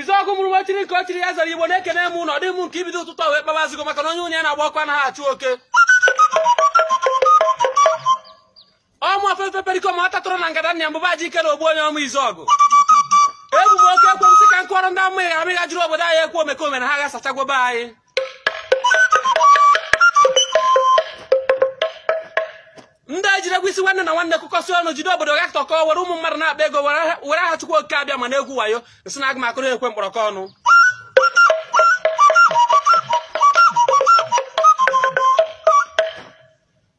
izuọkụ mụrụ nwa chiri nke ọ chiri ya zara igbo na-ekene m ụlọ dị m nke ibido ụtụtụ wee kpabazigo maka na onye onye na agbakwa na ha achụ oke ọmụ ofefe perikom atatụrụ na ngada nna mbụba ji ike na ogbu onye ọmụ ọgụ ebubo oke ekwe m sị ka nkọrọ ndị amaghị amịghajiri obodo anyị ekwu omekome na ha ga-asachagwobe anyị isi nwanne na nwanne kụkọsị ọnụ jide obodo ga tọkọ were ụmụ mmadụ na-akpa ego were aha chukwu oke abịa mana egwu wayo nsị na aga ekwe mkpọrọkọ ọnụ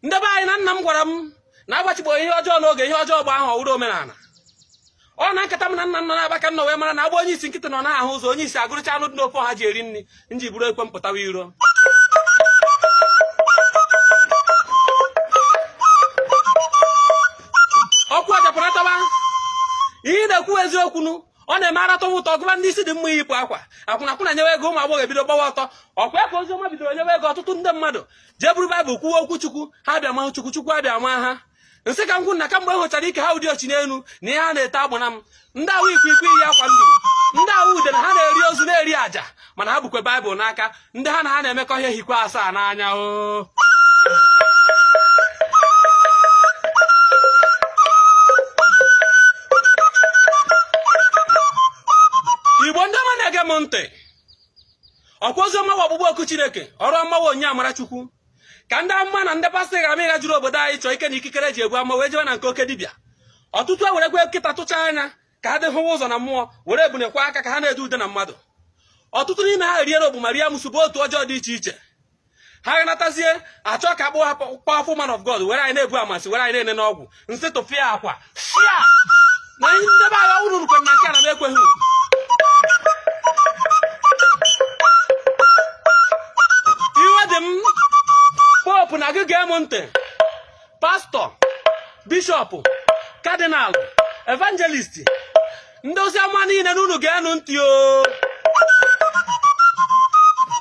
ndị be anyị na nna m gwara m na agbachigbo ihe ọjọọ n'oge ihe ọjọọ bụ ahụ ọwụrụ omenala ọ na nkata m na nna nọ na-abaka nna wee mara na agba onye isi nkịta nọ na ahụ ụzọ onye isi agụrụcha anụ dị n'ofe ọha ji eri nri nji buru ekwe mpụtawa iro ọkwa ọjapụrụ atọba ihe na-ekwu eziokwu ọ na-eme aratọwa ụtọ gụba ndị isi dị mma yipụ akwa akwụna akwụna nyewe ego ụmụ agbọghọ ebido gbawa ọtọ ọkwa ya ka ọma bidoro nyewe ego ọtụtụ ndị mmadụ jee buru baịbụl kwuwe okwu chukwu ha bịa mahụ chukwu chukwu abịa ma ha nsị ka m kwụ na kamgbe e hụchara ike ha ụdị ọchị n'elu na ihe ha na-ete agbana m ndị awụ ikwu ikwu iyi akwa nduru ndị awụ ude na ha na-eri ozu na-eri àjà mana ha bukwe baịbụl n'aka ndị ha na ha na-emekọ ihe hikwa asaa n'anya ute ọkwa oziọma bụ ọgbụgbọ oku chineke ọrụ ọmawa onye amarachukwu ka ndị amụma na ndị pastọ ga-ama ịga jụrụ obodo anyị chọọ ike na ikikere ji egbu ama wee jewe na nke oke dibịa ọtụtụ e werekwe nkịta tụcha anya ka ha hụwa ụzọ na mmụọ were ebunekwa aka ka ha na-ede ude na mmadụ ọtụtụ n'ime ha riere ogbu ma rie otu ọjọọ dị iche iche ha ganatazie achọ ka akpọ ha powerful man of God were anyị na-ebu amasị were anyị na-ene n'ọgwụ nsị tụfịa akwa na ndị agha uru rukwe na nke a na m ekweghị hope na gị ga-emu ntị pastọ bishọp kadinal evangelist ndị oziọma niile na unu ga-enu ntị o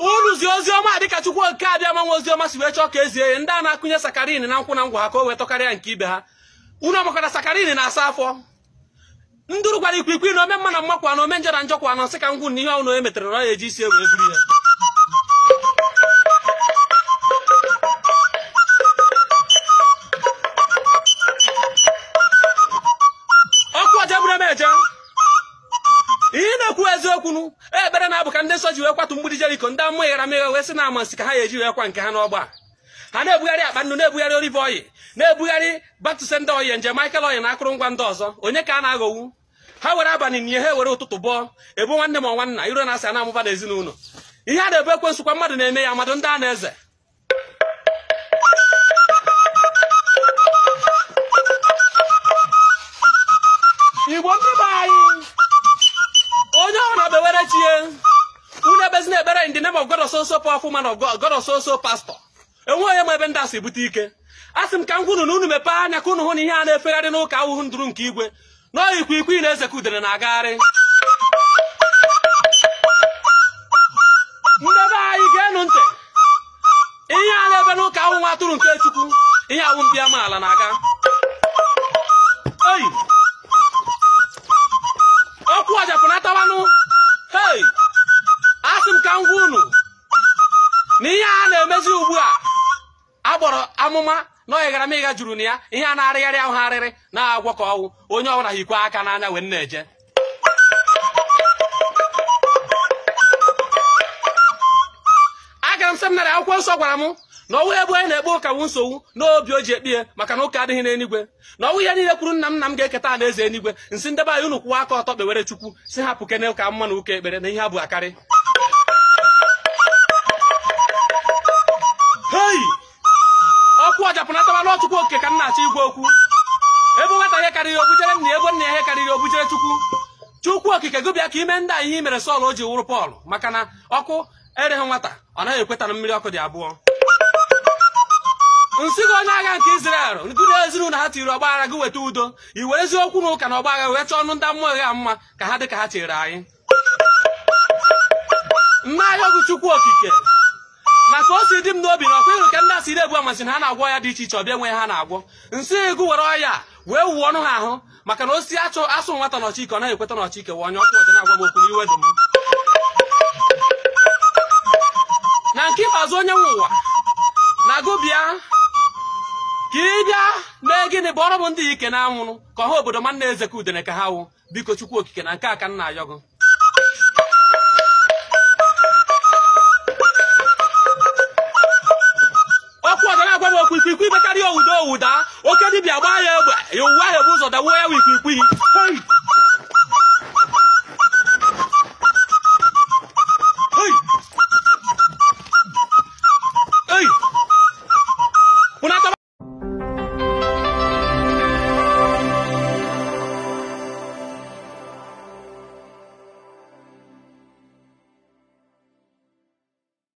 unu zi oziọma dịka chukwu oke abịama nwa oziọma si wee chọọ ka ezie ya ndị a na-akụnye sakarin na nkwụ na ngwa ha ka o wetọkarịa nke ibe ha unu ọmakọta sakarin na-asa afọ ndụrụ gwara ikwikwii na ome mma na mmakwa na ome njọ na njọ kwa nọ sị na ihe ọnụ emetere na ọ ya eji isi ewe buru ya bụ eziokwu e, ekpere na-abụ ka ndị nsọ ji wee kwatụ mgbidi Jeriko ndị amụma gharameghe wee sị na nsị ka ha ya eji wee kwa nke ha n'ọgba ha na-ebugharị akpa nnu na-ebugharị olive oyi na-ebugharị batuse ndị oyi njem Michael oyi na akụrụngwa ndị ọzọ onye ka a na owu. ha were abalị nye ha were ụtụtụ bọọ ebu nwanne m nwanna iro na-asị a na-amụba n'ezinụlọ ihe a na-ebe ekwe mmadụ na-eme ya mmadụ ndị a na-eze pray in the name of God so so powerful man of God, God so pastor. enweghị m ebe ndị asị bute ike a sị ka m gwunu na unu mepee anya ka unu hụ na ihe a na-efegharị ahụhụ ndụrụ nke igwe n'ọyikwa ikwu ị na-eze i udere na-agagharị ndị be anyị ga-enu ntị ihe a na-ebe n'ụka ahụhụ atụrụ nke chukwu ihe awụ mbiamaala na-aga oyi amụma na ọ m mịga juru na ya ihe a na-arịgharị ahụ arịrị na-agwọ ka ọwụ onye ọbụla hikwe aka n'anya wee na-eje agara m seminarị akwụkwọ nsọ gwara m na ọnwụ ebe onye na-ekpe ụka nsogbu n'obi o ji ekpe ya maka na ụka adịghị n'enigwe na ọnwụ ya niile kwuru nna m nna m ga-eketa na eze enigwe nsị ndebe anyị unu kwụwa aka ọtọ kpewere chukwu si hapụ kene ụka mma na ụka ekpere na ihe ha bụ akarị okike gụbịa ka ime ndị anyị ihe mere Sọl o ji wụrụ Pọl maka na ọkụ ereghị nwata ọ naghị ekweta na mmiri ọkụ dị abụọ nsị gị onye agha nke Izrel nkụrụ ezinụlọ ha tiri ọgba aghara gị weta udo i were eziokwu na ụka na ọgba wee chọọ ọnụ ndị mmụọ gha mma ka ha dị ka ha chere anyị nna ahịa ọgụ okike na ka o si dị m n'obi na ọkwa ịrụ ka ndị asị na-ebu amasị na ha na-agwọ ya dị iche iche ọbịa enweghị ha na-agwọ nsị gị were ọya wee wuo ọnụ ha ahụ maka na osisi achọ asụ nwata n'ọchị ike ọ naghị ekweta n'ọchị ike wa onye ọkụ ọjọọ na-agwa m okwu n'iwe dị m na nke ikpeazụ onye nwe ụwa na gụbịa ka ị bịa mee gịnị ọrụ bụ ndị ike na anwụrụ ka ọha obodo ma nna eze udene ka ha wụ biko chukwu okike na nke a ka nna ayọgụ wuda oke dibia gbaa ya egbe ya Your ya bụ ụzọ dawo ya wikwikwii